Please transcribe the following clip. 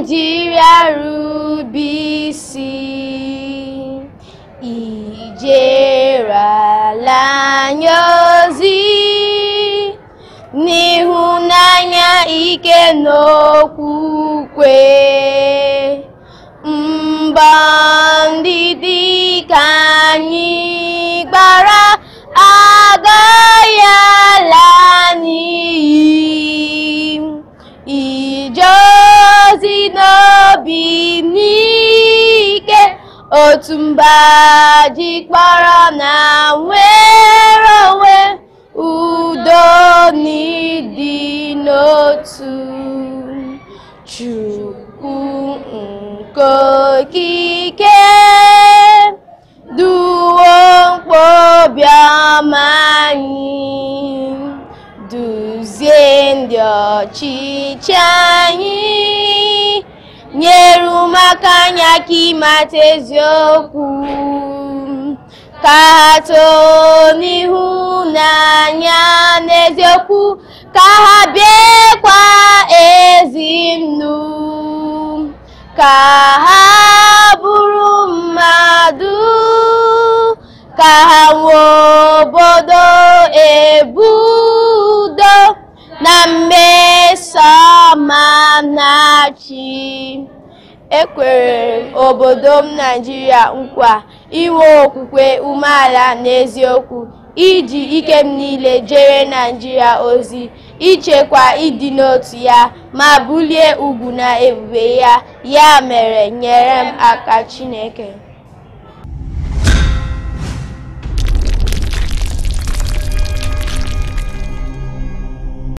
nigeria rube isi ala n'ịhụnanya ike n'okwukwe mba obi n'ike otu mba ji kpọrọ na nwere onwe udo n'ịdị n'otu chukwu nke okike duwo obiọma anyị duzie ndị ọchịchị anyị nyere ụmụaka anya aka ịmata eziokwu ka ha too n'ihu n'anya n'eziokwu ka ha biekwa ezi nnu ka ha bụrụ mmadụ ka ha nwee obodo ebudo na mme ma m na-achị ekwere obodo m Naijiria nkwa inwe okwukwe umeala n'eziokwu iji ike m niile jere Naijiria ozi ichekwa ịdị n'otu ya ma bulie ugwu na ebube ya ya mere nyere m aka Chineke